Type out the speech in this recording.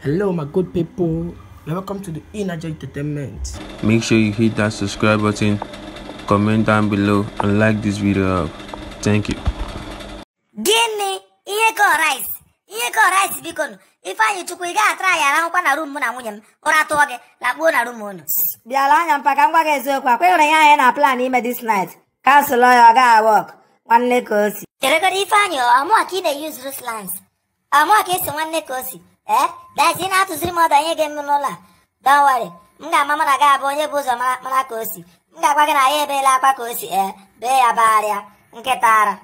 Hello, my good people. Welcome to the Energy Entertainment. Make sure you hit that subscribe button, comment down below, and like this video up. Thank you. Gịnị ihe rice? Ihe ka rice biko nụ. ifeanyi Chukwu ị ga-atara anyị arahụkwa na room mụ na nwunye m. Ụra tụọ gị, lakpuo na rum unu. Bịara anya mpa ka m gwa gị eziokwu ya ihe anyị na plan ime this night. cancel ya ọ gaa one Nwanne ka o si. Cheregoro Ifeanyị ọ mụwa ka ị na ama ka esi nwanne ka o si ee dazi ị na-atụziri m ọdụ onye ga-eme n'ụlọ a dọwari m ga-ama m na gị abụ onye bụ ụzọ mara ka o si m ga-agwa gị na ya ebeela akwa ka o si ee bee ya bagharịa nkịta ara